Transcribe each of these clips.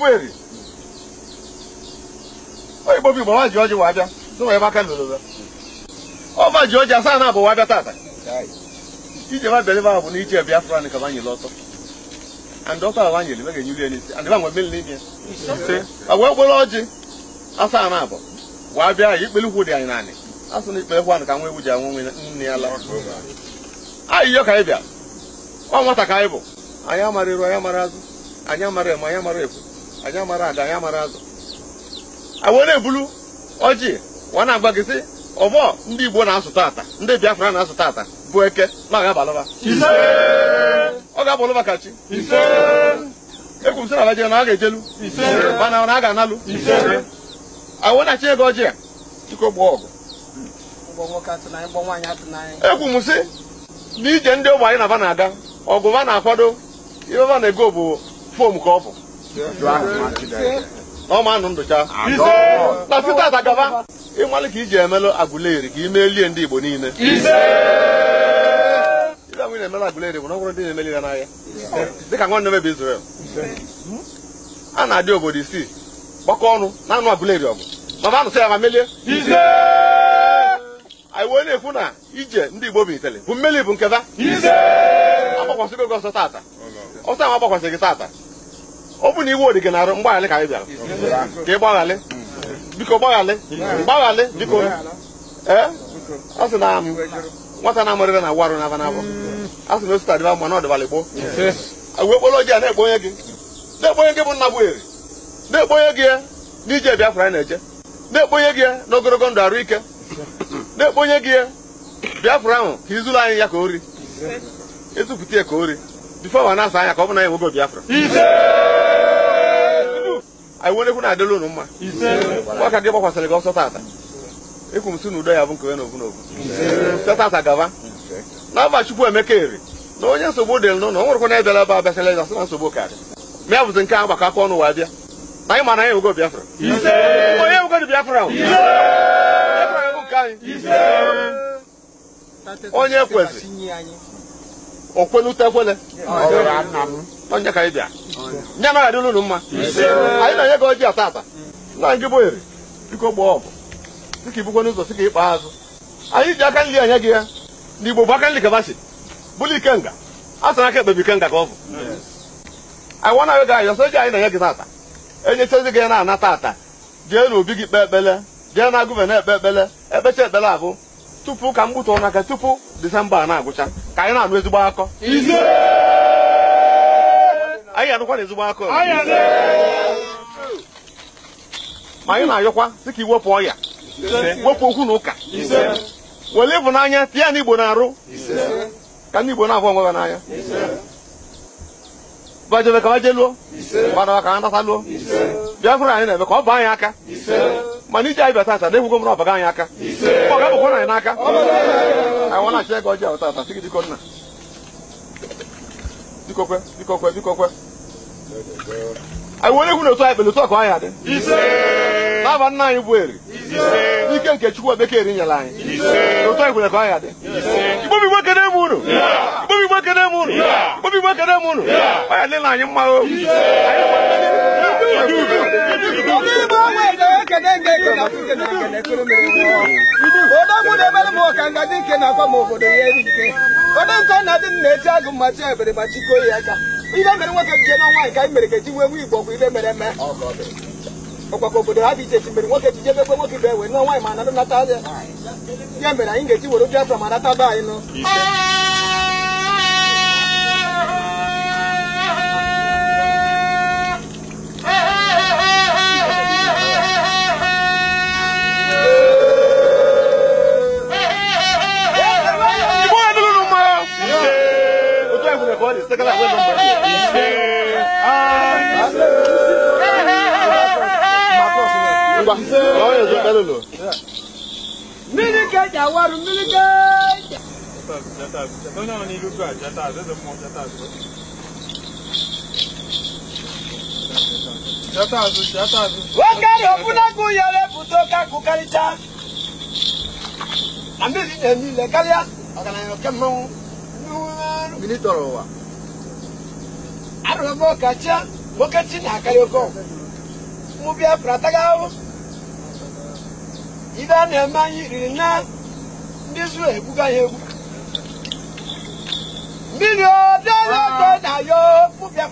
kweli oyibo bi mwa jioji wabia so wabia kan lolo ba o ma jioji asana bo wabia tata ijeba oh. uh, oh. believe ahụ bụ na ije biafra na ka anyị lọtọ and ọkọ ala nyere mega enyiri ya n'isi and ịba nwe mmiri n'ime ise agwa ọjị asa na abụọ Wa bịa ya ikpere dị anyị naanị asụ ewu ji anwụ nwe nne la anyị ka anyị bịa ọ ka anyị bụ anyị amara iru anyị amara azụ anyị amara eme anyị amara ekwu anyị amara ada anyị amara azụ ebulu ọjị wa na-agba gị ọbọ ndị igbo na-asụ tata ndị biafra na-asụ tata efu eke ma ga-abalụba ọ ga-abalụba ka chi ekwuru sị na Naịjirịa na a ga-ejelu mana na a ga-analụ awụnachi ego ọjị a chiko gbaa ọgụ ekwu m sị n'ije ndị ụmụ anyị na-aba na-aga ọgụ va na-akwado ife va na-ego bụ fom ka ọ bụ na ọma anụ ndụcha na site atagaba ịmalụ ka iji emelụ agụleri ka imelie ndị Igbo niile ị na-emere Aguleri nwere ọgwụrụ ndị na-emeliri n'ahịa dịka nwanne mebe Israel a na-adị obodo isii gbakọ ọnụ na-anụ Aguleri ọgụ mama anụsị ya ma melie anyị wee na-ekwu na ije ndị Igbo bụ itele bụ mmeli bụ nketa agbakwasịgo gị ọsọ tata ọsọ ahụ agbakwasị gị tata ọ bụ na iwe odi gị na-arụ mgbaghalị ka anyị bịara ka ị gbaghalị biko gbaghalị gbaghalị biko ee ọ sị na nwata na-amụrịrị hmm. na warụ na aba n'abọ asị m esụta dịba mma na ọdịbala igbo uwe okporo ojii a na-ekpo onye gị na-ekpo onye gị bụ nna bụ eri na-ekpo gị ya n'ije Biafra anyị na-eje na-ekpo gị ya na ogologo ndụ arụ ike na-ekpo gị ya Biafra ahụ ka izulu anyị ya ka o ri ya ka o bifo ma na-asa anya ka ọ bụ na ya nwogo Biafra anyị ekwu na-adịla unu mma ọka gị gbakwasịrị gị ọsọ tata ekwu m si n'udo ya bụ nke onye na ovu na ovu sọ tata gaba na-aba chukwu emeka eri na onye nsogbu dị n'ụlọ nwerekwana ebịala ebe abịasịla ịza sị na nsogbu karị mịa bụzi nke a gbakọ aka ọnụ wa bịa na anyị mana anyị ewego Biafra ise onye ewego dị Biafra onye kwezi okwelutekwele onye ka anyị bịa nye anaghị adịla unu mma ise anyị na-enye gị oji ata ata nna gị bụ eri biko gbaa ọbụ dịka ibukwe n'ụzọ sị ka ịkpa azụ anyị ji aka nri anya gị ya n'igbo bụ aka nlikabashi bụlụ ikenga a sara aka ekpebi ikenga ka ọ bụ anyị wana ego anyị ọsọ ego anyị na-enye gị tata enyechazi gị na anata ata jee n'obi gị kpee ekpele jee na agụve na-ekpe ekpele ekpecha ekpele abụ tupu ka m gbutụrụ n'aka tupu disemba a na-agwụcha ka anyị na-anụ ezigbo akọ anyị anụkwa na ezigbo akọ ma anyị na-ayọkwa dị ka iwepụ ọya wepụ okwu na ụka were n'anya tie ya na igbo na-arụ ka ndị igbo na afọ onwe ha n'anya bajebe ka bajeluo gbadawa ka ha nataluo biafra anyị na-eme ka ọ bụ anyị aka mana iji anyị bịa tata na egwugo m na ọbaga anyị aka ọ ga-abụkwa anyị n'aka anyị nwa na-achị ego ọjọọ tata sị gị diko nna dikokwe dikokwe dikokwe anyị were egwu na otu anyị kpere otu ọkụ anyị adị n'aba nna anyị bụ eri ike nke Chukwu bekee nyere anyị ụtọ igwere ka ọ ya dị igbobi igbo kene m unu unu unu ya dịla anyị mma o na ọka nke na-akwa m obodo ya eri na dị na-eti agụ ya ihe mere nwoke jije n'ọnwa nke anyị mere ka ji wee nwe igbo bụ ibe mere ọkpakọ obodo ha dị iche iche mere nwoke jije bekwe nwoke ibe wee nụọ nwaanyị ma anadụ nata ya ya mere anyị ga-eji were biafra ma nata be anyị nụ Ah, Mmiri keja waru mmiri keja. Onye ọ n'ilu gụ ajata jata Jata azụ jata azụ. Nwoke ahụ ọbụnagụ yere pụta oke akụkarịcha. Na mmiri na-eme ile karịa ọgaranya oke mmanwụ. Mmiri tọrọ ụwa. Arụrụ m ọkacha, nwoke ibe a na-eme anyị riri na ndị zuru egbuga ya egbu mmiri obiara ah. na ya Pita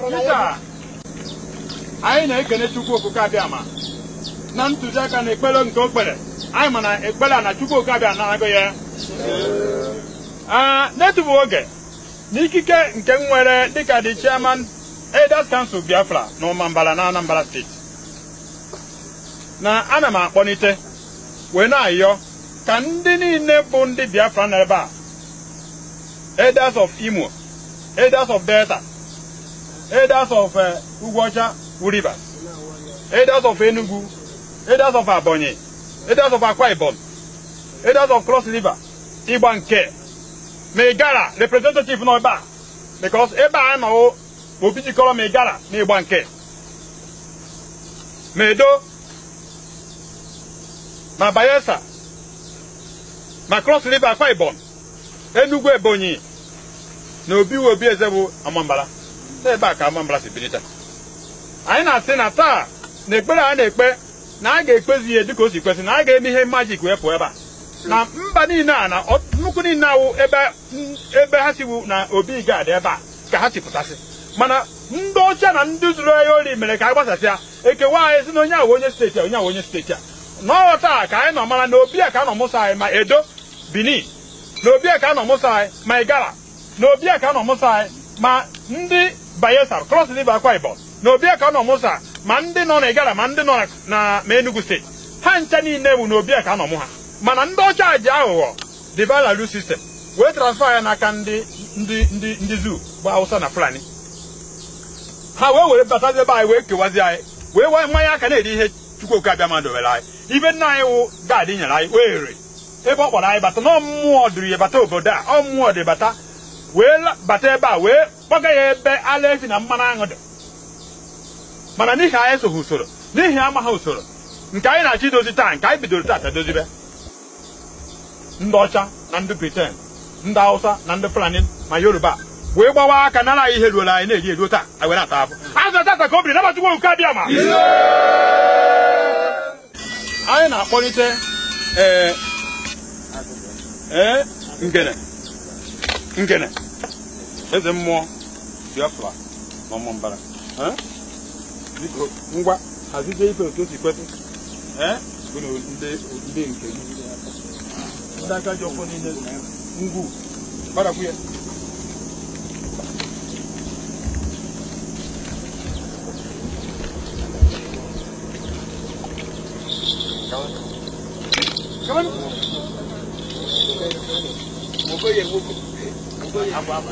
anyị na-ekene Chukwu Okike Abịama na ntụziaka na ekpere nke okpere anyị ma na ekpere a na Chukwu Okike Abịama na-agụ ya ah, n'etufu oge n'ikike nke nwere dịka the chairman Elders Council Biafra na Ụmambara na Anambra steeti na ana m akpọlite wee na-ayọ ka ndị niile bụ ndị Biafra na ebe a elders of Imo elders of Delta elders of eh, Ugwuocha Rivers elders of Enugu elders of Ebonyi elders of Akwa Ibom elders of Cross River ịgba nke representative nọ ebe a because ebe a nọwo obi jikọrọ na ịgba nke Medo ma Bayelsa ma Cross River Akwa Ibom Enugu Ebonyi na Obi Obi Eze bụ Amambala ebe a ka Amambara si bilita anyị na-asị na taa na ekpere a na-ekpe na a ga-ekpezi ihe dịka o si kwesị na a ga-eme ihe majik wee pụọ ebe a na mba niile a na nnukwu niile awụ ebe ha siwu na obi ga-adị ebe a ka ha si mana ndị ọcha na ndị zuru ahịa ori mere ka a gbasasịa ekewa anyị si na onye awụ onye steeti a onye ahụ onye steeti a n'ọta ka anyị nọ mara na obi a ka anọ mụsa anyị ma edo benin na obi a ka anọ mụsa anyị ma igala na obi a ka anọ mụsa anyị ma ndị bayelsa dị river akwa ibom na obi a ka anọ mụsa ma ndị nọ na igala ma ndị nọ na ma enugu steeti ha ncha niile bụ na obi a ka anọ mụ ha mana ndị ọcha ji aghụghọ divalalu sistem wee transfer ya n'aka ndị ndị ndị ndị zoo bụ hausa na fulani ha wee were batazi ebe anyị wee kewazi anyị wee nwee mmanya aka na-eri ihe chukwu oke abịa mmadụ were anyị ibe nna anyị wụ gaadị nyere anyị wee were ebe ọ kpọrọ anyị bata na ọmmụọ dịrị ya bata obodo a ọmụmụ dị bata wee bata ebe a wee kpọga ya ebe ala ezi na mmanụ aṅụ dị mana n'ihi anyị soghị usoro n'ihi amaghị usoro nke anyị na-achọ idozi taa nke anyị bidoro taata dozibe ndị ọcha na ndị briten ndị hausa na ndị fulani ma yoruba wee gbawa aka nara anyị ihe ruola anyị na-eri eruo taa anyị were ata afọ azụ tata ka o biri nabachukwu nke abịa ma anyị na-akpọlite ee e, ngene ngene eze mmụọ biafra na mbara e? biko ngwa hazizie ife otu o si e? nke ndị nke ngwu gbarakwu ya Come on. Mo fẹ́ yẹ gbogbo. Mo fẹ́ yẹ gbogbo.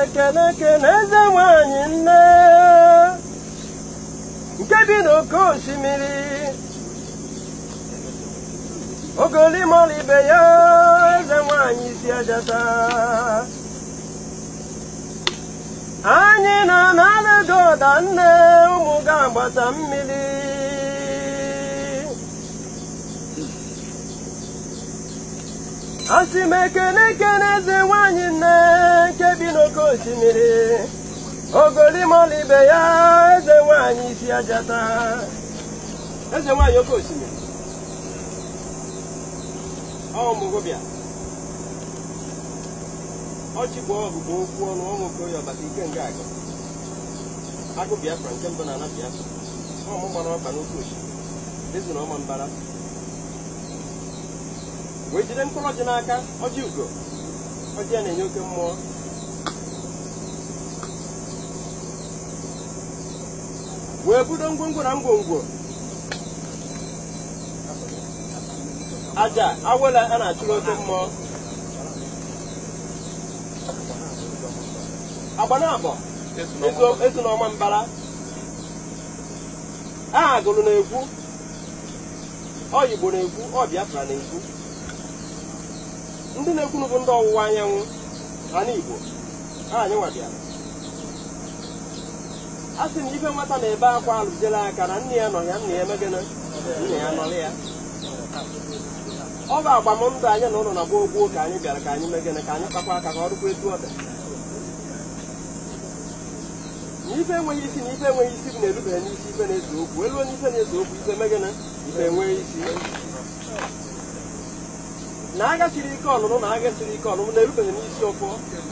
ekele ekele eze nwanyị nne nke bi n'oke osimiri ogoli ya eze nwanyị isi ejeta anyị na na-alụdo ụda nne ụmụ ga-agbata mmiri asị m ekene ekene eze nwanyị nne nke bi n'oke osimiri ogolimọla ibe ya eze nwanyị isi ejeta eze nwanyị oke osimiri ọmụgwụbịa ọchị bụ ọgụgụ okwu ọnụ ọnụ okoye ọbata ike nga aga agụ biafra nke mbụ na ala biafra ọmụ gbara ọba n'oke osimiri dịzụ na ọma mbara wee jide mkpụrụ ọjị n'aka ọjị ugo ọjị ya na-enye oke mmụọ wee budo ngwongwo na ngwongwo aja awela a na-achụrụ oke mmụọ agbanabọ ezinọma mbara aha gụrụ na-ekwu oyigbo na-ekwu ọ na-ekwu ndị na ekwu bụ ndị ọwụwa anyanwụ ala Igbo anyanwa bịara a sị na ife nwata na-ebe akwa alụjela aka na nne ya nọ ya nna ya emegana nna ya nọrọ ya ọ bụ agbamndụ anyị na ụlọ na-agba ka anyị bịara ka anyị megana ka anyị kpakwa aka ka ọ dịkwa etu ọ dị ife enweghị isi na ife enweghị isi bụ na-erubere n'isi ife na-eze okwu elu onye ife na-eze okwu ife mege na ife enweghị isi na agachiri ike ọlụlụ na agachiri ike ọlụlụ na-erubere n'isi ọfọ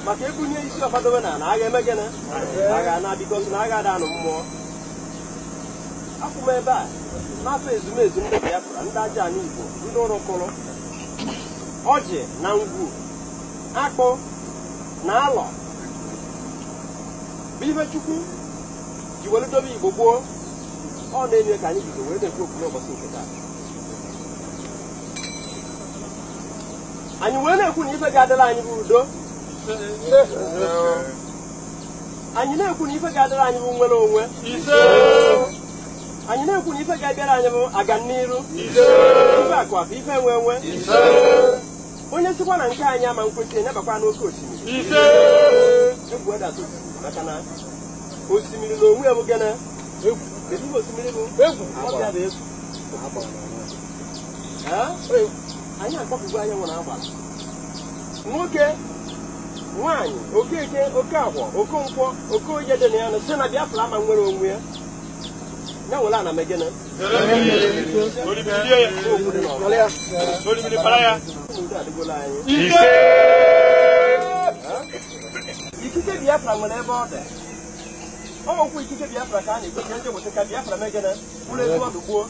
maka ebunye isi ọfadobe na na agha emege na agha na-adịkọsị na agha ada anụ mmụọ akwụ m ebe a n'afọ ezumezu ndị pụra ndị aja na Igbo ndị ụrụkụrụ ọjị na ngwu akpụ na alọ bụ ife chukwu ji were dobe igbo gboo ọ na-enye ka anyị bido wee na-ekwu okwu n'ụbọchị nke taa anyị wee na-ekwu na ife ga-adịla anyị bụ udo anyị na-ekwu na ife ga-adịra anyị bụ nwere onwe anyị na-ekwu na ife ga-abịara anyị bụ aga n'iru ife akụ ife enwe enwe onye sikwa na nke anyị ama nkwesị enyebakwa n'oke osimiri egwu makana osimiri na onwe ya bụ gana egwu ezigbo osimiri bụ egwu ọbịa bụ egwu anyị akpọpụgo anya nwere agbara nwoke nwaanyị okeke oke agwọ okonkwọ oke onye dị na ya sị na biafra ama nwere onwe ya ya nwere ana megene adịgola anyị ise ikike biafra nwere ebe ọ dị ọgwụ ikike biafra ka a na-ekweje ndị obodo ka e biafra megịnị bụrụ ezi gbuo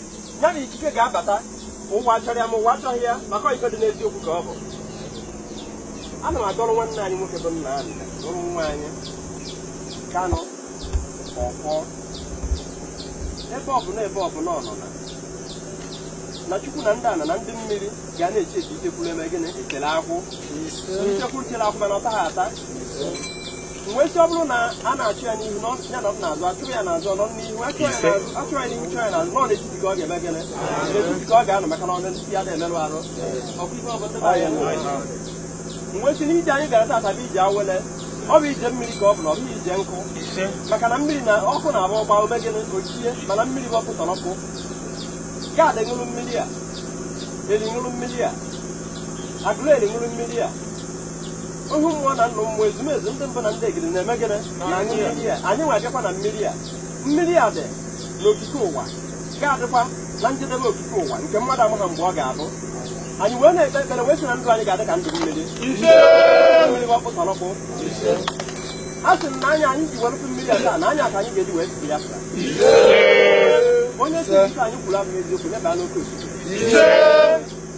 ya na ikike ga-abata ụwa chọrọ ya ma ụwa achọghị ya maka iko dị n'eziokwu ka ọ bụ ana m adọrọ nwanne anyị nwoke bụ nna anyị dọrọ nwa anyị kanụ ọkwọ ebe ọbụla ebe ọbụla ọnụna na chukwu na ndị ana na ndị mmiri ga na-eche eji itekwuru eme gịnị ekele akwụ ichekwu kele akwụ mana ọ ata mgbe esi ọ bụrụ na a na-achụ ya n'ihu ya na ọ na-azụ achụrụ ya n'azụ ọnọ n'ihu achụrụ ya n'ihu chụọ ya n'azụ n'ọ na-etiti ka ọ ga-eme gịnị n'etiti ka ọ ga-anọ maka na ọnụ ndị ya na-emerụ arụ ọkụkọ ọbụla ya mgbe esi n'ije anyị gara tata bụ ije awele ọ bụ ije mmiri ka ọ bụ na ọ bụghị ije nkụ maka na mmiri na ọkụ na-agba ọgba ome gịnị ochie mana mmiri bụ ọkụ tọrọpụ gaadị ṅụrụ mmiri a eri ṅụrụ mmiri a agụrụ eri ṅụrụ mmiri a ụhụ mmụọ na nna ụmụ ezumezu ndị mbụ na ndị egiri na-eme gịnị anyị nwe abịakwa na mmiri a mmiri a dị n'okike ụwa ga-adịkwa na njedebe okike ụwa nke mmadụ amụna mgbe ọ ga-abụ anyị wee na-ekpe ekpere wee sị na ndụ anyị ga-adị ka ndụ mmiri mmiri ọkpụtọlọkpụ a sị m na anya anyị ji werụpụ mmiri a taa na anya ka anyị ga-eji wee siri ya onye si ife anyị kwuru abụ eziokwu nye baa n'oke osimiri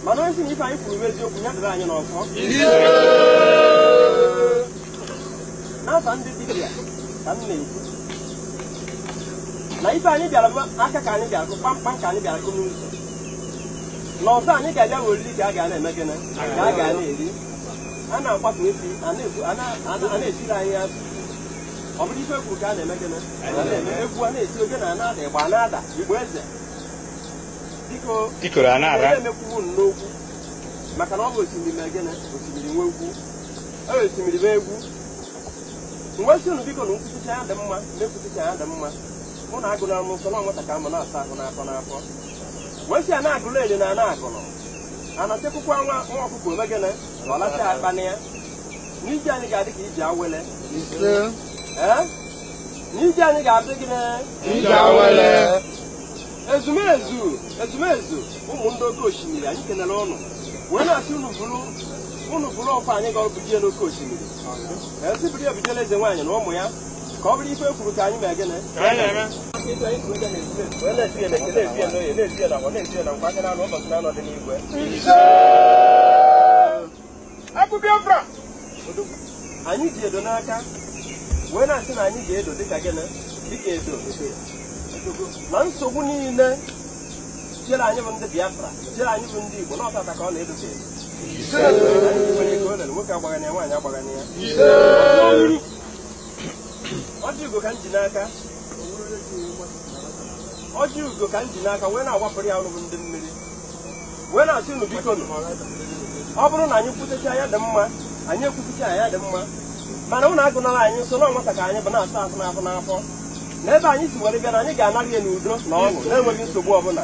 mana onye si na ife anyị kwuru bụ eziokwu nye dịrị anyị n'ọzọ ha so ndị dibịa ka m na-ekwu na ife anyị bịara aka ka anyị bịara kụ kpamkpam ka anyị bịara kụ n'ụzọ na ọzọ anyị ga-abịa weriri ka a ga na-eme gịnị ka a ga na-eri a na-akwapụ efi ana-etiri anyị azụ ọ bụrụ ife kwuru ka a na-eme gịnị na-eme egwu a na-eti oge na ana-ada ịgba ana-ada igbo eze biko na-emekwuwu n'okwu maka na ọ bụ osimiri mee gịnị osimiri nwe egwu osimiri mee egwu mgbe si unu biko na nkwụsịcha ya dị mma na-ekwụsịcha ya dị mma mụ na agụla m nsọ na nwata m na-asa ahụ n'afọ n'afọ wee si a na-agụla ele na ana agụlụ a na nwa nwa ọkụkọ omegene na ọlacha akpa na ya n'ije anyị ga-adị ka iji awele n'ije anyị ga-adị gị ezumezu ezumezu ụmụ ndị oke osimiri anyị kenere ọnụ wee na-asị unu bụrụ unu bụrụ ọkwa anyị ga-ebuje n'oke osimiri ezibiri ebidela eze nwaanyị na ụmụ ya ka ọ bụrụ ife ekwuru ka anyị mee gịnị anyị ji edo n'aka wee na-asị na anyị ga-edo dịka gịnị dịka edo na nsogbu niile chere anyị bụ ndị Biafra chere anyị bụ ndị Igbo n'ọtata ka ọ na edo nwoke agbagana agbagana ya ọjị ugo ka m ji n'aka ọjị ka m ji n'aka wee na-agbapụrụ ya ọrụ ndị mmiri wee na-asị unu biko ọ bụrụ na anyị kwutecha ya dị mma anyị ekwutecha ya dị mma mana ụnụ agụnala anyị nso na ọnwata ka anyị bụ na-asa ahụ n'afọ na ebe anyị si were bịa na anyị ga-anara ya n'udo na ọṅụ na-enweghị nsogbu ọbụla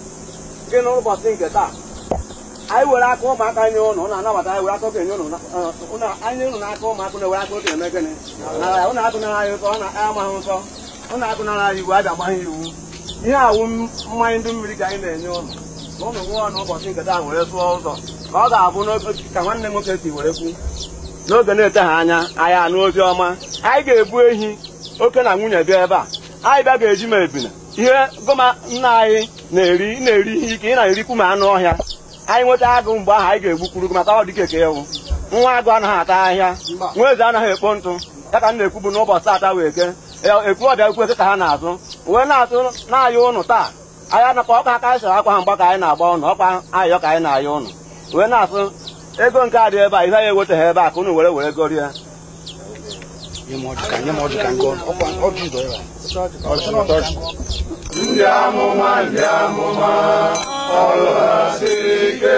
gị na ụlọ nke taa ụmụaka na na-ewere amaghị nsọ ụnụ agụnara iwu a ga-agba ha iwu ihe awụ mmanya ndị mmiri anyị na-enye nke ụzọ ka ọ ga-abụ ka nwanne nwoke were kwu n'oge na-eteghị anya anyị anụ ọma anyị ga-ebu ehi oke na nwunye bịa ebe a anyị bịa ga-eji ma ebina ihe goma nna anyị na-eri na-eri ihe ike ị na-erikwu ma anụ ọhịa anyị nweta agụ mgbe ahụ anyị ga-egbukwuru maka ọ dịka eke ewu nwa agụ anaghị ata ahịa nwa eze anaghị ekpo ntụ ya ka m na-ekwu bụ n'ụbọchị taata wee ke ekwu ọbịa ekwu ka ha na-azụ wee na-atụ na-ayọ ụnụ taa anya anakwa ọka aka anyị sara akwa ha mgba ka anyị na-agba ụnụ ọkwa ayọ ka anyị na-ayọ ụnụ wee na-asụ ego nke adịghị ebe a ihe anyị eweteghị ebe a ka ụnụ were were gorie nye m ọjụ ka nye m ọjụ ka ngọ ọkwa ọjụ dọ ya ọjụ mata ọjụ ndị amụma ndị amụma ọrụ ha siri ike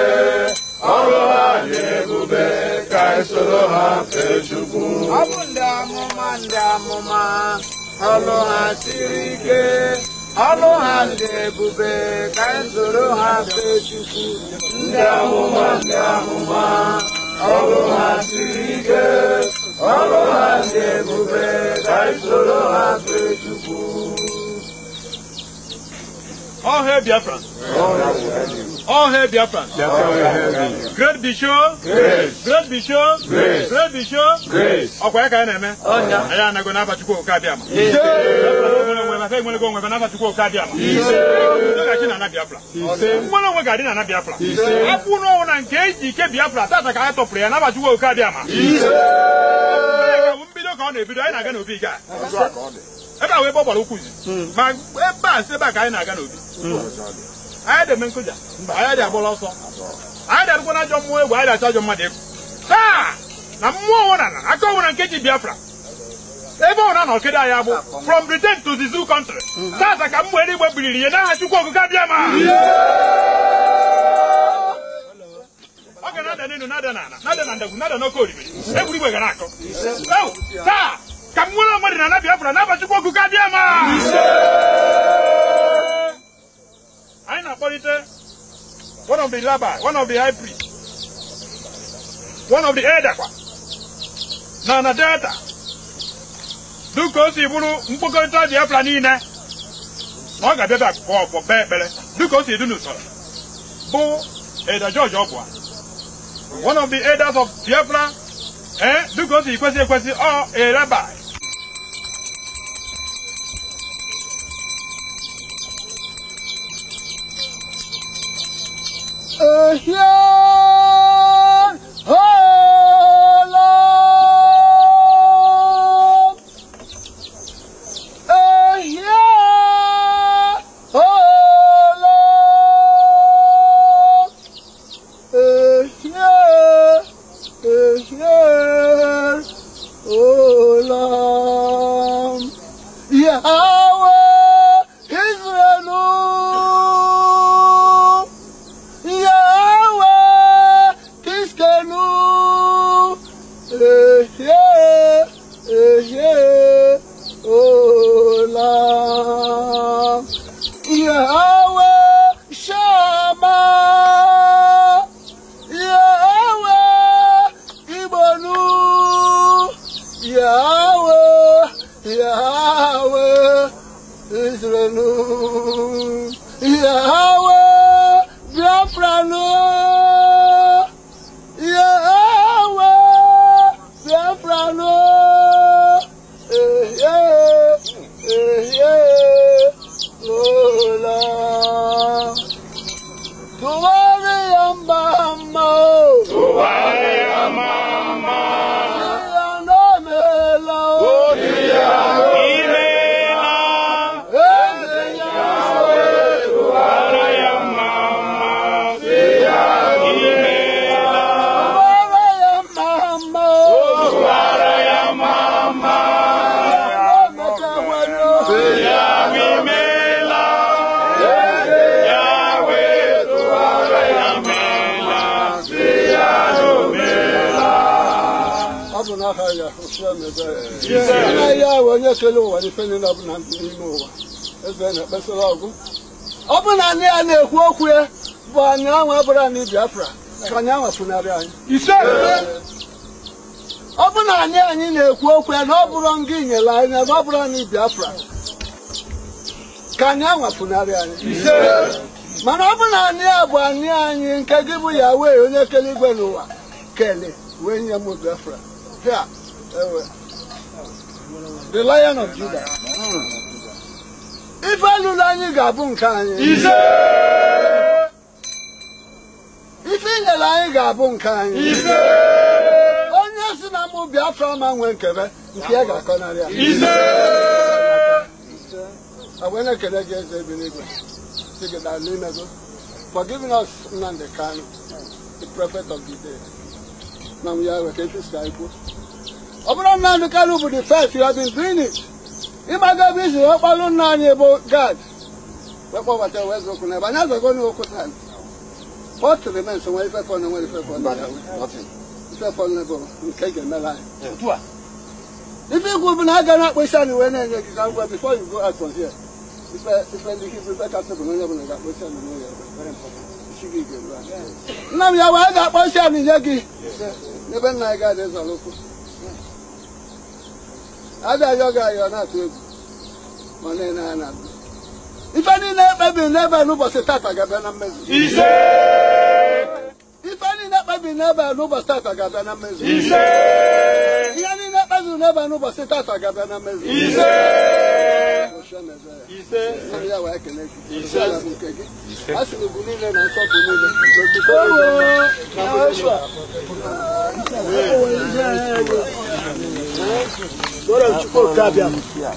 ọrụ ha dị ebube ka esoro ha fe chukwu ọbụ bụ ndị amụma ndị amụma ọrụ ha siri ike ọrụ ha dị ebube ka esoro ha fe chukwu ndị amụma ndị amụma ọrụ ha siri ike ọ ha ndị ebube ka anyị ha fee Chukwu All Biafra. All Biafra. Great Bishop. Grace. Great Bisho. Grace. Great Bisho. Grace. Ọkwa ya ka anyị na-eme. Anyị anago n'aba Chukwu Okabịama. abata enwerego onwe mana asatukwa oke adịaba ndogachi na ana biafra ga-adị na ana biafra akwụ n'ọnwụ nke eji ike biafra tata ka ha tọpụrụ ya nabatukwa oke mbido ka na-ebido anyị na-aga n'obi ga ebe a wee ma ebe a si a ka anyị na-aga n'obi anyị dị eme nkụja anyị dị agbọrọ ọsọ anyị dị abụkwa na mmụọ egwu anyị dị achọ ajọ mmadụ nke ji biafra ebe ọ na-anọ kedu anya bụ from Britain to the zoo country tata mhm. ka mgbe eluigwe biriri ihe n'aha Chukwu okike ọ ga na-ada na na taa ka m nwere onwe dị na Nabi n'aba Chukwu anyị na-akpọlite dịka o si bụrụ mkpokọrịta biafra niile na ọ ga-abịaba akụkọ ọkpọ kpee ekpere dịka o si dị n'usoro bụ Ada George Ogbuah one of the elders of biafra ee dịka o si kwesị ekwesị ọ ereba ehie na ụwa ife niile ọ bụla n'ime ụwa eze na-ekpesara ọgụ ọ bụrụ na anyị ya na-ekwu okwu ya bụ anyị anwa bụrụ anyị Biafra ka anyị anwa pụnarị anyị ọ bụrụ na anyị anyị na-ekwu okwu ya na ọ bụrụ ngị nyere anyị na ọ bụrụ anyị Biafra ka anyị anwa pụnarị anyị mana ọ bụrụ na anyị a bụ anyị anyị nke gị bụ ya wee onye kere igwe n'ụwa kele wee nye m Biafra ha ewe the lion of Judah ife alụlụ anyị ga-abụ nke anyị ise. ife inyere anyị ga-abụ nke anyị ise. onye si na mụ afọ ma nwee nkebe nke ya ga-akọnarị akọ ya wee na-ekele gị eze bi n'igwe si gị daalụ imego for giving us Nnamdi Kanu the prophet of the day na m ya wee ka efi si anyị kwuo ọbụrụ na Anukewu bụ the first you have been doing it ịmaga ebe isi wee kpalụ nna anyị ebo gad wee kpọbata wee zokwu n'ebe anyị azago n'okwu taa what the men to remains nwere ife fọnụ nwere ife fọnụ ife fọnụ n'ebe nke ga-emere anyị ife ikwu bụ na If you go to anyị wee na-enye gị ka ngwa before you go out from here If ife ife ndị hibru ife kasị bụ na onye ọbụla ga-akpọ isi anyị n'ụlọ nna m ya wee ga-akpọ isi anyị nye gị n'ebe nna anyị ga-adị zọrọ ụkwụ ada yoga you are not able na na ife niile ekpebi n'ebe n'ụbọchị tata ga-abịa na mmezu ise ife niile ekpebi n'ebe n'ụbọchị tata ga-abịa na mmezu ise ihe niile ekpebi n'ebe n'ụbọchị tata ga-abịa na mmezu ise ise ya wee kele gị ise ya bụ nke gị a sị ugwu niile na nsọpụ niile na otuto niile na Bora okike abịa.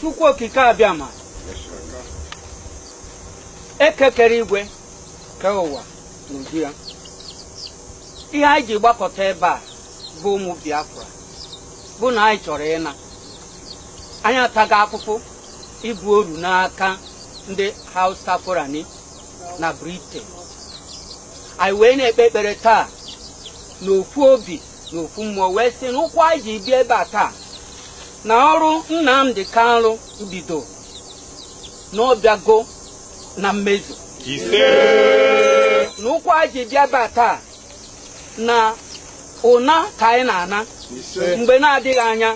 Chukwu okike abịa ma ekekere igwe ke ụwa ya ihe anyị ji gbakọta ebe a bụ ụmụ Biafra bụ na anyị chọrọ ịna anyị ataghị akpụkpụ ibu oru n'aka ndị Hausa Fulani na Britain anyị wee na-ekpe ekpere taa n'ofu obi na ofu mmụọ wee sị n'ụkwụ ụkwụ anyị ji bịa ebe a taa na ọrụ Nnamdi nrụ bido na na mmezu na ụkwụ anyị ji bịa ebe a taa na ụna ka anyị na-ana mgbe na-adịghị anya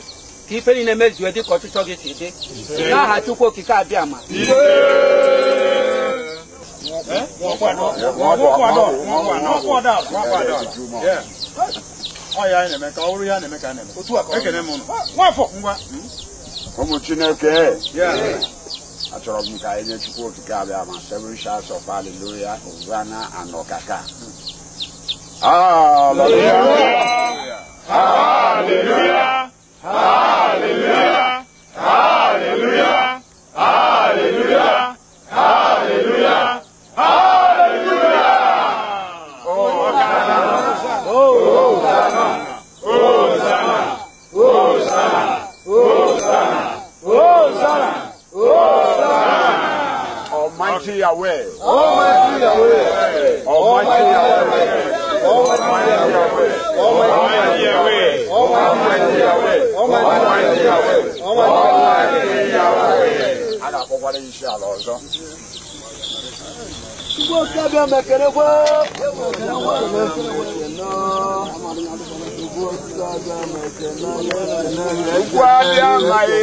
ka ife niile mezue dịka ọchịchọ gị si dị n'aha Chukwu okike abịa ma ya na-eme ka ya na-eme ka na-eme ngwa ụmụ chineke achọrọ m ka anyị nye chukwu okike abịa ma seven of hallelujah ugana hallelujah hallelujah hallelujah Almighty Yahweh. Almighty Yahweh. Almighty Yahweh. Almighty Yahweh. Almighty Yahweh. Almighty Yahweh. Almighty Yahweh. Almighty Yahweh. Ada kọ́kọ́ lè ṣe àlọ́ ọ̀dọ́. Ṣùgbọ́n kábíyà mẹ̀kẹ́rẹ́ wá. Wá bí a máa yé.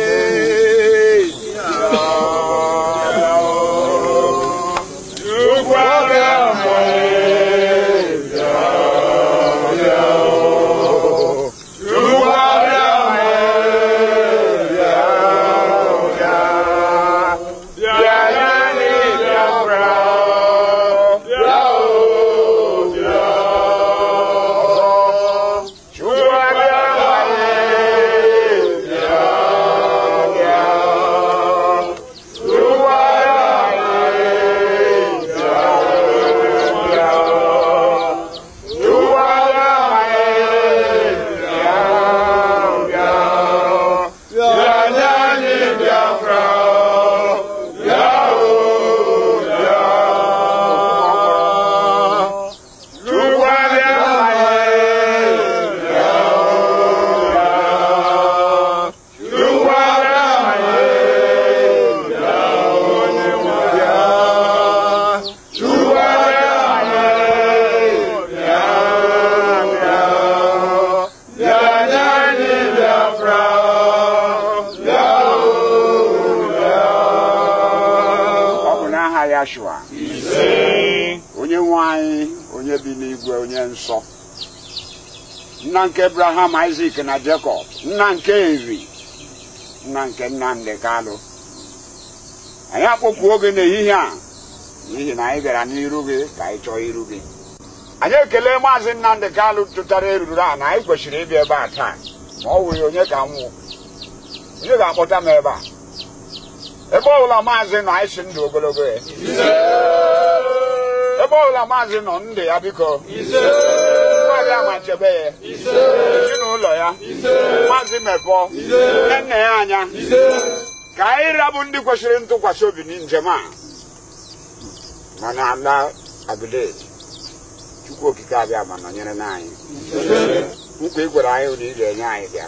nna nke abraham isaac na jacob nna nke eri nna nke nnamdị kalụ anyị akpọkuo gị n'ehihie a n'ihi na anyị bịara n'iru gị ka anyị chọọ iru gị anyị ekele maazị nnamdị kalụ tụtara eruru a na anyị kwesịrị ịbịa ebe a taa ma ọ wụghị onye ka nwụ onye ga-akpọta m ebe a ebe ọ bụla maazị nọ anyị si ndụ ogologo ya ebe ọbụla maazị nọ ndụ ya biko maazị amachebe ya ezinụlọ ya maazị mepọ nne ya anya ka anyị rabụ ndị kwesịrị ntụkwasị obi na njem a mana ala abidet chukwu okike abịa ma nọnyere n'anyị nkwa ị gwara anyị na ị ga-enye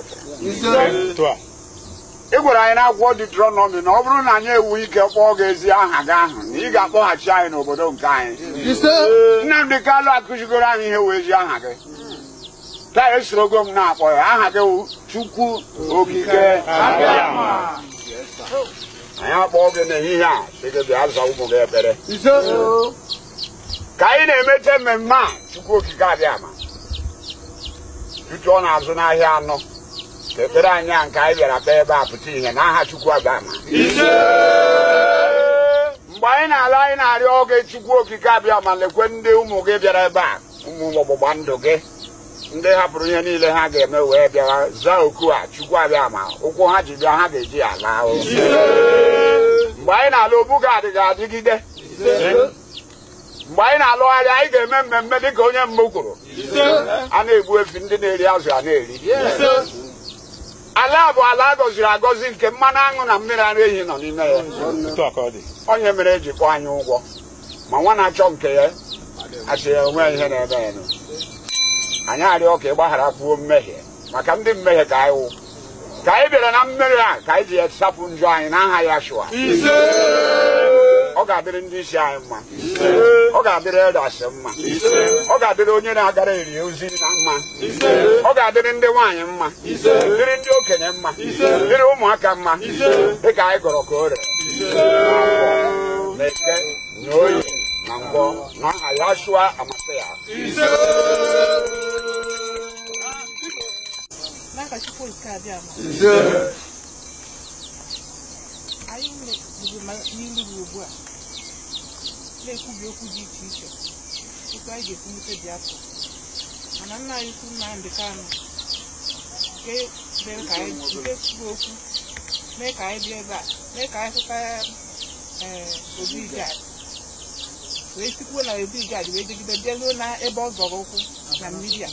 anyị ị gwara anyị n'akwụkwọ nọ na ọ bụrụ na anyị ewu ike kpọọ gị ezi aha gị ahụ na ị ga-akpọghachi anyị n'obodo nke anyị Nnamdị Kalụ akụzigoro anyị ihe wee ezi aha gị taa esorogo m na-akpọ ya aha gị wụ Chukwu Okike anyị akpọọ gị n'ehihie a sị gị ụmụ gị ekpere ka anyị na-emecha mmemme a Chukwu Okike abịa ma tutu ọ na-azụ n'ahịa anọ ekpere anyị a nke anyị bịara kpee ebe a pụta ihe n'aha Chukwu abama mgbe anyị na-ala anyị na-arịọ oge Chukwu okike abịa ma lekwe ndị ụmụ gị bịara ebe a ụmụ ọgbụgba ndụ gị ndị hapụrụ ihe niile ha ga-eme wee bịa zaa oku a Chukwu abịa ma ụkwụ ha ji bịa ha ga-eji ya laa mgbe anyị na-ala obu ga ga-adịgide mgbe anyị na-alụgharị anyị ga-eme mmemme ka onye mbụ kwuru a na-egbu efi ndị na-eri azụ a na-eri ala bụ ala gọziri agọzi nke mmanụ aṅụ na mmiri ara ehi nọ n'ime ya onye mere e ji kwụọ anyị ụgwọ ma nwa na-achọ nke ya achị ya onwe ihe na ebe ya anyị arịọ ka ị gbaghara mmehie maka ndị mmehie ka anyị wụ ka anyị bịara na mmeri a ka anyị ji ya sapụ njọ anyị n'aha ya shụa ọ ga-adịrị ndị isi anyị mma ọ ga-adịrị edasị mma ọ ga-adịrị onye na-agara eri ozi na mma ọ ga-adịrị ndị nwaanyị mma dịrị ndị okenye mma dịrị ụmụaka mma dịka anyị gọrọ ka o rere na oyi na mbọ na aha ya shụa amasị ya nke abịa ugbu a na-ekwubi okwu dị iche iche otu ga-ekwulite a nke kwuru okwu mee ka anyị bịa ebe a mee ka anyị hụta eh, Obi Ijad wee sikwuo na Obi Ijad ebe ọ zọrọ ụkwụ na mmiri a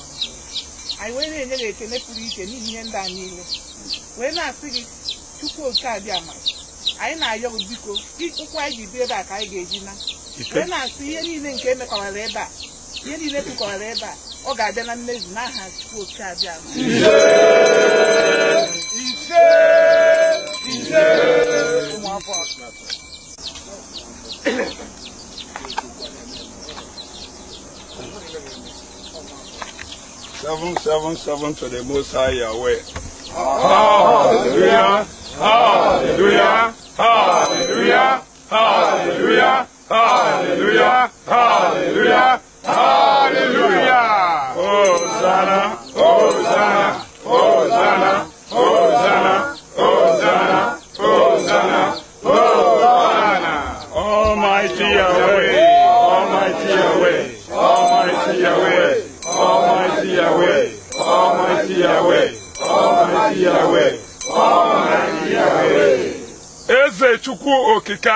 anyị wee na-enye gị ekele pụrụ iche n'ihi ihe ndị a niile wee na-asị gị chukwu oke ama anyị na-ayọ gị biko ụkwụ anyị ji bi ebe a ka anyị ga-eji na wee na-asị ihe niile nke emekọrọ ebe a ihe niile kpụkọrara ebe a ọ ga-abịa na mmezu n'aha chukwu oke abịa ụmụakwụkwọ seven seven seven to the Most High Yahweh. Hallelujah! Hallelujah!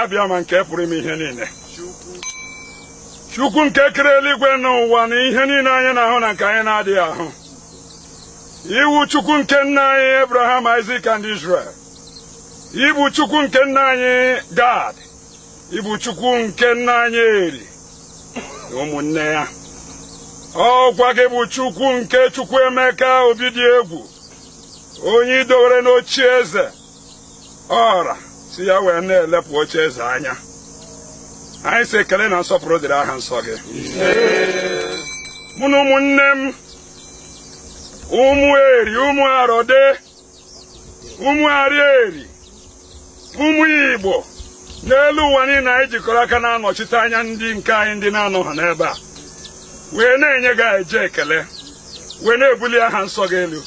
abịa ma nke pụrụ ime ihe niile chukwu nke kere eluigwe n'ụwa na ihe niile anyị na-ahụ na nke anyị na-adịghị ahụ iwu chukwu nke nna anyị abraham isak and israel ibu chukwu nke nna anyị gad ibu chukwu nke nna anyị eri ụmụnne ya ọkwa gị bụ chukwu nke chukwu emeka obi egwu onye idowere n'ochie eze ọra si ya wee na-elepụ oche eze anya anyị si ekele na nsọpụrụ dịrị aha nsọ gị mụ na ụmụnne m ụmụ eri ụmụ arọde ụmụ eri ụmụ igbo n'elu ụwa niile anyị jikọrọ aka na-anọchite anya ndị nke anyị ndị na-anọ ha n'ebe a wee na-enye gị eje ekele wee na-ebuli aha nsọ gị elu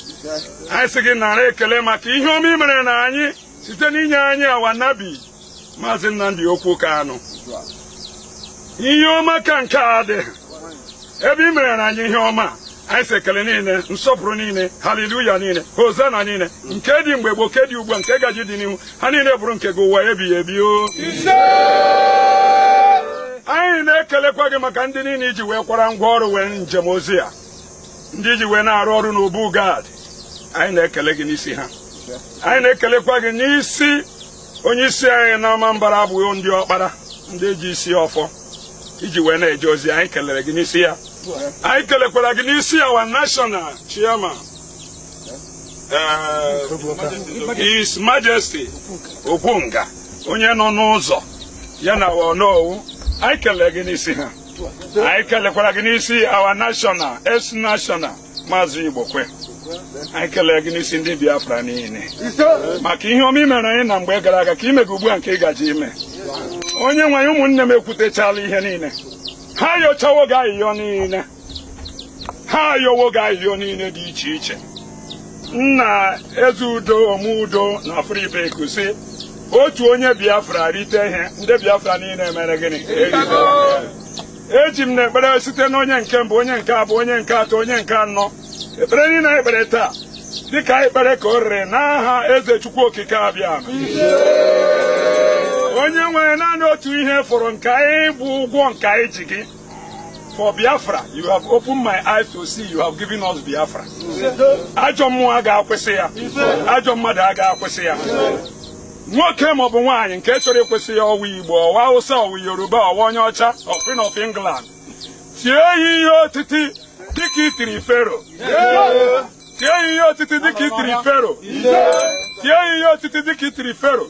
anyị sị gị nara ekele maka ihe ọma i mere na anyị site n'inye anyị awa awanabi maazị Nnamdi okwu anụ ihe ọma ka nke a dị ebe ị mere na anyị ihe ọma anyị si ekele niile nsọpụrụ niile haleluya niile hosana niile nke dị mgbe gboo nke dị ugbu a nke gaji dị n'ihu ha niile bụrụ nke gị ụwa ebighị ebi o anyị na-ekelekwa gị maka ndị niile iji wee kwara ngwa ọrụ wee njem ozi a ndị iji wee na-arụ ọrụ n'obu gad anyị na-ekele gị n'isi ha anyị na-ekelekwa gị n'isi onye isi anyị n'ọma mbara abụghị ndị ọkpara ndị ji isi ọfọ iji wee na-eje ozi anyị kelere gị n'isi ya anyị kelekwara gị n'isi our national chairman eh, His Majesty Okwunga onye nọ n'ụzọ ya na Onowu anyị kelere gị n'isi ha anyị kelekwara gị n'isi awa national es national maazị Igbokwe anyị kelee gị n'isi ndị Biafra niile maka ihe ọma imere anyị na mgbe gara aga ka imega ugbu a nke ị gaji ime onye nwere ụmụnne m ekwutechala ihe niile ha yochawo gị ahịhịa niile ha yowo gị ahịhịa niile dị iche iche nna eze udo ome udo na afụribe kusi otu onye Biafra rite ihe ndị Biafra niile mere gịnị eji m na ekpere site na onye nke mbụ onye nke abụọ onye nke atọ onye nke anọ ekpere niile anyị kpere taa dịka anyị kpere ka o rere n'aha eze chukwu okike abịa onye nwere naanị otu ihe fọrọ nke anyị bụ ụgwọ nke anyị ji gị for biafra you have opened my eyes to see you have given us biafra ajọ mmụọ a ga-akwụsị ya ajọ mmadụ a ga-akwụsị ya nwoke maọbụ nwaanyị nke chọrọ ịkwụsị ya ọwa igbo ọwa awụsa ọwa yoruba ọwa onye ọcha ọfin of england tie ya ihe otiti dịka fero tie ihe otiti dịka itiri fero tie ihe otiti dịka itiri fero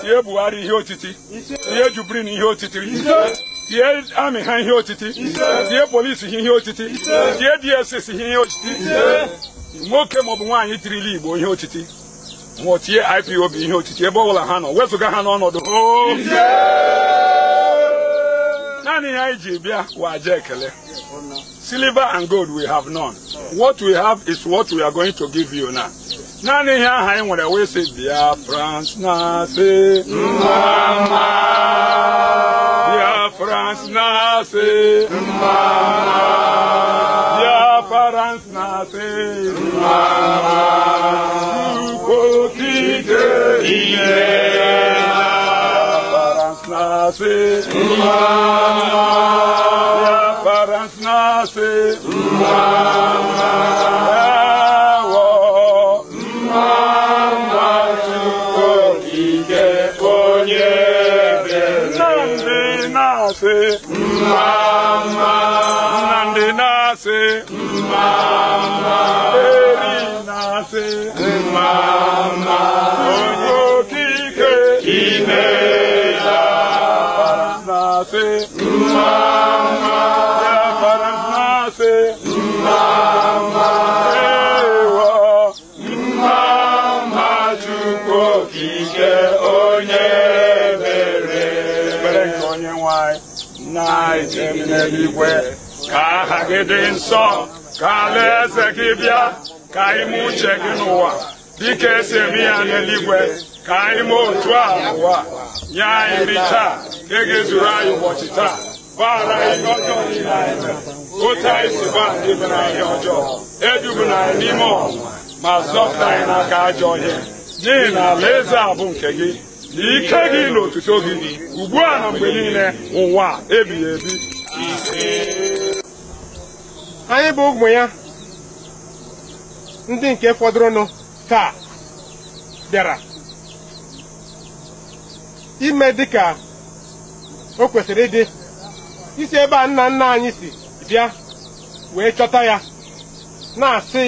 tie buhari ihe otiti tie jubrin ihe otiti tie amị ha ihe otiti tie polisi ha ihe otiti tie dss ha ihe otiti nwoke maọbụ nwaanyị tirila igbo ihe otiti nwụọ tie ipob ihe otiti ebe ọ bụla ha nọ wezụga ha n'ọnọdụ hoo Nani IGB Wajekele. Silver and gold we have none. What we have is what we are going to give you now. Nani here I want to say dear France na say mama Dear France na say mama Dear France na say mama Ukotite ile umma, يا فرنسا umma, Mama, Nandi Nasi, Mama, Eri Nasi, Mama, Oyo Kike, Kime. eluigwe ka aha gị dị nsọ ka ala eze gị bịa ka ime uche gị n'ụwa dịka esi eme ya n'eluigwe ka anyị mee otu a n'ụwa nye anyị nri taa ka e ga anyị ụbọchị taa gbaghara anyị ihe ọjọọ niile anyị mere otu anyị ndị mere anyị ọjọọ edubuna anyị n'ime ọnwụnwa ma zọpụta anyị n'aka ajọ ọhịa n'ihi na alaeze a bụ nke gị na ike gị na otuto gị ugbu a na mgbe niile ụwa ebighị ebi anyị bụ ụmụ ya ndị nke fọdụrụnụ taa bịara ime dịka o kwesịrị ịdị isi ebe a nna nna anyị si bịa wee chọta ya na-asị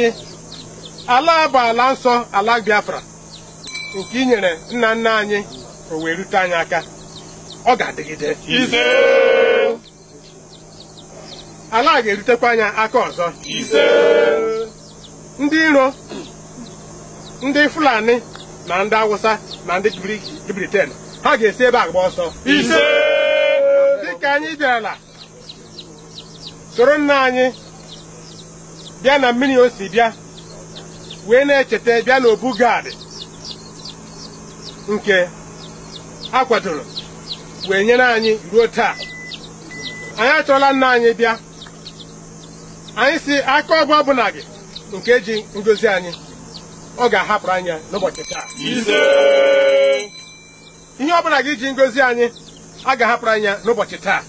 ala bụ ala nsọ ala Biafra nke i nna nna anyị o wee rute anyị aka ọ ga-adịgide ala a ga-erutekwa anya aka ọzọ ndị iro ndị fulani na ndị awụsa na ndị briten ha ga-esi ebe agba gba ọsọ dịka anyị bịara soro nna anyị bịa na mmiri o si bịa wee na-echeta bịa n'obu gadị nke a kwadoro wee nyere anyị ruo taa anyị achọla nna anyị bịa anyị si aka ọgwụ ọbụla gị nke ji ngozi anyị ọ ga-ahapụrụ anya n'ụbọchị taa ihe ọbụla gị ji ngozi anyị a ga-ahapụrụ anya n'ụbọchị taa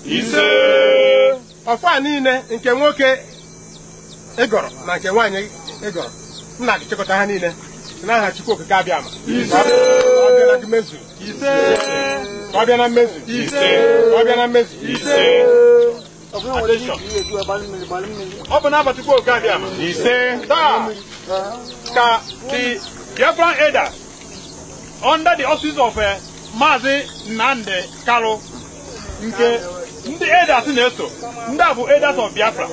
ọfọ niile nke nwoke ịgọrọ e na nke nwaanyị ịgọrọ e nna gị chịkọta ha niile n'aha Chukwu Okike abịa ama ọ bịa na mmezu ka ọ bịa na mmezu ọ bụ n'abalị oge abịa ise taa ka di Biafran elder under the office of eh, Maazị Nnamdi karo nke ndị edas na-eso ndị a bụ edas of Biafra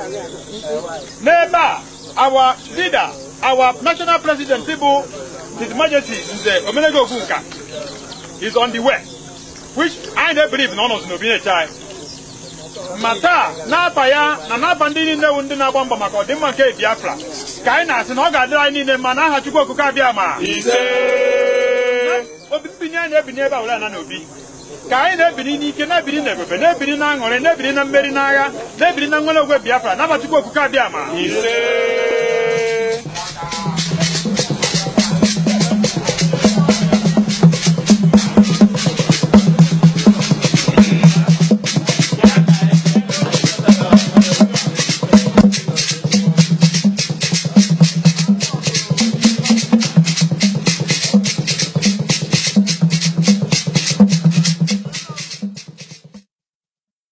n'ebe a our leader our national president bụ His Majesty Nze Omenego Ogunka is on the way which i na believe na ọ nọzi ma taa n'afa ya na n'afa ndị niile wụ ndị na-agba mbọ maka ọdịmma nke Biafra ka anyị na-asị na ọ ga-adịrị anyị niile mma na Chukwu okike abịa ma obi anyị ebinye ebe awụla na n'obi ka anyị na-ebiri n'ike na-ebiri na ebube na-ebiri na aṅụrị na-ebiri na mmeri n'agha na-ebiri na nwere ogwe Biafra n'aha Chukwu okike abịa ma